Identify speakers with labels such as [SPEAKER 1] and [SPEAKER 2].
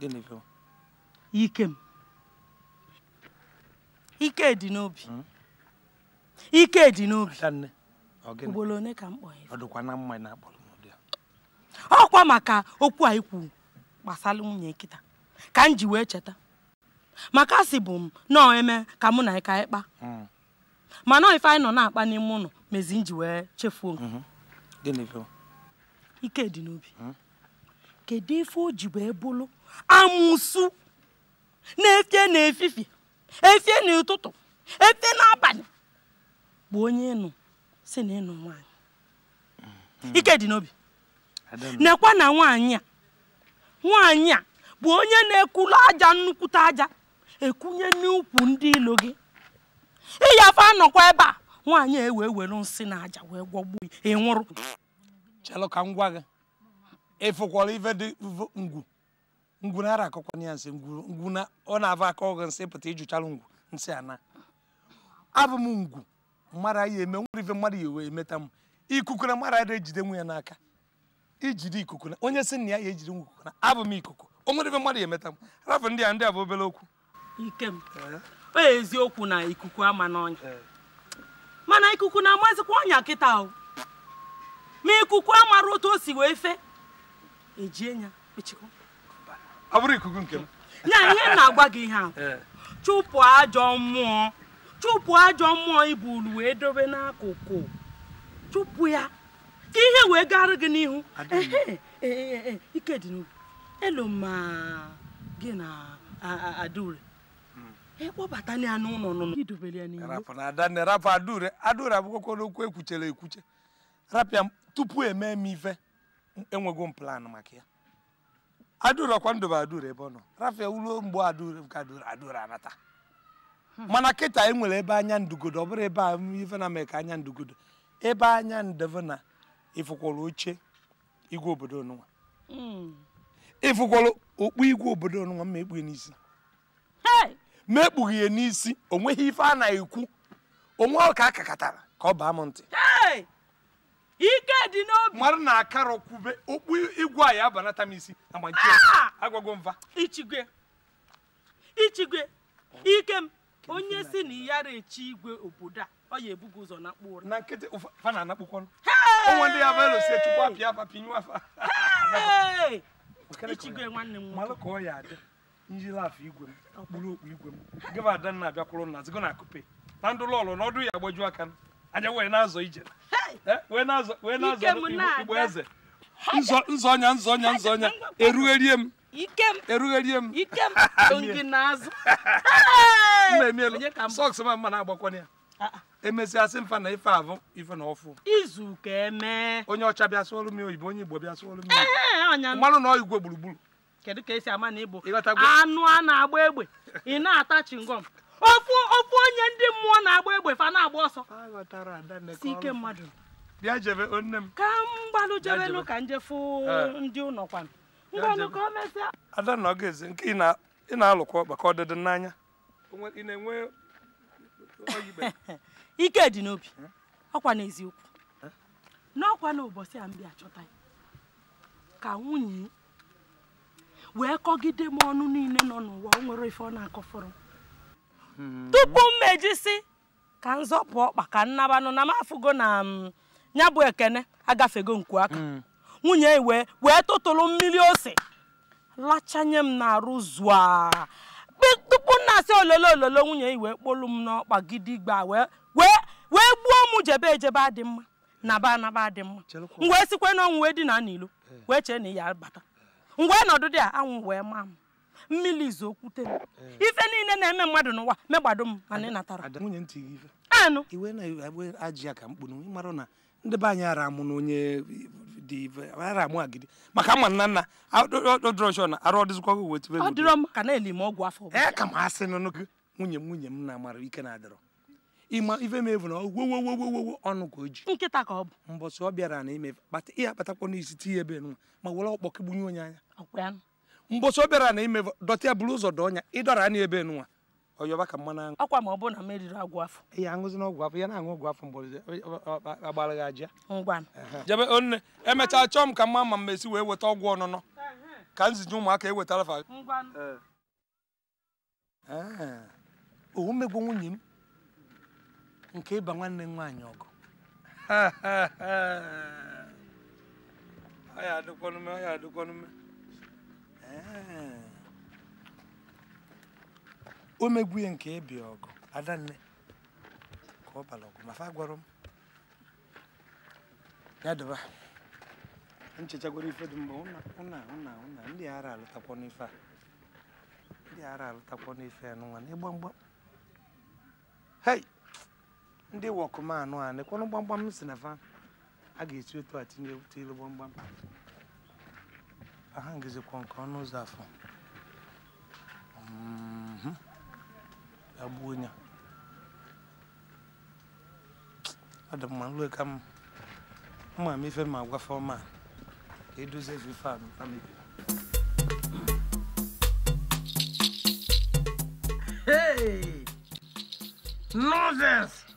[SPEAKER 1] Gịnị bụ?
[SPEAKER 2] Ike m. Ike dị n'obi. Hmm? Ike dị n'obi. Ugboro one ka m kpọrọ ọkwa maka okwu a ikwu gbasara nwunye nkịta ka m ji wee cheta maka si bụ m nọọ eme ka mụ na ịka ịkpa hmm. mana ife anyị nọ na-akpa n'ime ụlọ mezi m ji wee chefuo mm-hmm. ike dị n'obi hmm? kedu ife o ji wee bụlụ amụsụ na-efie n'efifie efie n'ụtụtụ efie n'abalị bụ onye ịnụ si na ịnụ hmm. ike dị n'obi nekwa na nwanyị a nwanyị a bụ onye na-ekulu aja nnukwute aja ekunye n'ukwu ndị ilo gị ịyafe anọkwa ebe a nwaanyị ewe ewere nsị na aja wee gwọgbuo ịnwụrụ chelụ ngwa gị ịfụkwara ife dị
[SPEAKER 1] ngwu ngwuna ara akọkwana ya nsị na ọ na-ava aka ọgụ nsị pụta ịjụchala ngwu nsị ana abụ m ngwu mmadụ ya eme nwere ife mmadụ ya emeta m ikuku na mmadụ adịghị ejide nwe ya n'aka ijide ikuku na onye sị na ya ya ejide nwe ikuku na
[SPEAKER 2] abụ m ikuku o nwere ife mmadụ ya emeta m rafu ndị a ndị a bụ obere okwu ikem o eziokwu na ikuku ama n'ọnya mana ikuku na-amazikwa ọnya kịta ahụ, ma ikuku amara otu o si wee fe ejie ya echekwa ọ bụrụ ikuku nke m ya ihe na-agwa gị ihe a eh. chụpụ ajọ mmụọ chụpụ ajọ mmụọ ibulu wee dobe n'akụkụ chụpụ ya ka ihe wee gara gị n'ihu eh, eh, ike dị n'obi elu ma gị na adaure ịkpọbata hmm. e ya n'ụlọ nụnụ ya n'ihu rapụ
[SPEAKER 1] na adanne rapụ adaure adaure abụkwakwa n'okwu ekwuchere ekwuche rapịa tupu eme m ife enweghị m plan maka ya adurọkwa ndụ bụ aduru ebe ọ nọ rafe ulo mgbe aduru ka aduru anata
[SPEAKER 2] hmm. mana kịta e
[SPEAKER 1] nwere ebe anya ndugodo ọ bụrụ ebe a ife na mee ka anya ndugodo ebe anya ndeve na ifukwara oche igwe obodo ọnụnwa hmm. ifukwara okpu igwe obodo ọnụnwa ma ekpughe n'isi ma ekpughe ya n'isi onweghị ife a na-ekwu onwe ọka kakatara ka ọ baa m ntị ike dị n'obi mmadụ na-akara kwube okpu igwe a ya abanata m isi
[SPEAKER 2] ah! agwago mva ichigwe ichigwe ike m onye si na iyara echi igwe obodo a ọ ya ebugo ụzọ na mkpụrụ na nkịtị ụfa na anakpụkwanụ onwe ndị ya velosi chukwu apịa afa pinyu afa
[SPEAKER 1] ichigwe nwanne m malụ ka ọ ya adị njiri afọ igwe m okpuru okpu igwe m gịba ada na abịakwụrụ nna zigo na akụpe na ndụ lọlụ n'ọdụ ya agbaju aka m anyị wee na-azọ ije eh? wee na-azọ wee na-azọ igbo eze nzọ nzọnya nzọnya nzọnya erugherie m erugherie m na-emielu sọks ma mma na-agbakwana ya ah, ah. emesịa sị mfa na ife abụ ife na ọfụ eme onye ọcha bịa sụọrụ m oyibo onye igbo bịa sụọrụ m mmanụ na igwe gburugburu
[SPEAKER 2] kedu ka esi ama na igbo anụ a na-agba egbe ị na-ata chingom ofu ofu onye ndị mmụọ na-agba egbe fa na-agba ọsọ si ike mmadụ bịa jebe onne m ka m gbalụ jebelu ka njefu ndị ụlọ kwan mgbalụ ka o mesịa
[SPEAKER 1] ada na ọgaeze nke ị na-alụkwa maka ọdịdị n'anya
[SPEAKER 2] ike dị n'obi ọkwa n'eziokwu n'ọkwa na ụbọchị a m bịa chọta ya ka nwunye wee kọgide m ọnụ niile nọ n'ụwa o nwere ife ọ na akọ fọrọ. tupu m mejisi ka m zọpụ ọkpa ka m na m na ya bụ ekene agafego nku aka mm. nwunye iwe wee tụtụrụ mmiri ose lachanye m n'arụ zụa tupu m na-asị ololo ololo nwunye iwe kpolu m n'ọkpa gidigba wee wee gbuo m jebe ejebe adị mma naba anaba adị mma m wee sikwe n'ọnwụ wee dina n'ilo eh. wee chee na ya bata mgbe nọdụ dị a anwụ wee maa m mmiri izu okwute m eh. ife niile na-eme mmadụ n'ụwa megbado m mana ị natara nwunye anụ iwe na-agba ajị ya ka mkpụrụ ịmara na ndị
[SPEAKER 1] be anyị ara amụ na onye dị ife ara amụ agidi maka mma nna nna odrosh na arụ ọdịzikwa gị wetụ ọ dịrọ m ka na-eli m ọgwụ afọ ee eh, ka m asị nụnụ gị nwunye m nwunye m na-amara ike na-adịrọ ịma ife m evu na ogwogwogwogwo ọnụ ka o ji nkịta ka ọ bụ mbọsị ọ bịara na ime ihe akpatakwa n'isi tinye ebe nwa ma were ọkpọkị gbunye onye anya mbosi obere na ime dọtịa buru ụzọ dọọ ọnya ịdọrọ anya ebe nwa ọyọba ka mmanụ aṅụ ọkwa ma ọ bụrụ na m eriri ọgwụ afọ ya aṅụzi na ọgwụ afọ ya na-aṅụ ọgwụ afọ mgbọrọdị agbara gị aja ngwa jebe onne emechaa chọọ m ka mma ma m esi wee weta ọgwụ ọnụnọ ka m ziji ụmụaka ewetara fa owu mmegbu nwunye m nke ịba nwanne m nwaanyị ọgụ ya ọya adịkwanume ọya adịkwanume Eh. o megbuye nke ebi ọgụ adanne ka ọ bara ọgụ mafa gwara m ya dịba nchechagwara ife dị mgbe ụna ụna ụna ndị ara alụtakwa n'ife a ndị ara alụtakwa n'ife a n'ụwa na mgba hei ndị wọkụmanụ a nekwanụ gbamgbam si na fa a ga-esi otu a tinye ilu gbamgbam ahangizikwa nke ọnụ ụzọ afọ ya gbuo onye ọ dị mma nlue ka mma m ife ma agwafe ọma ka edozie Hey, a mebiri Nonsense!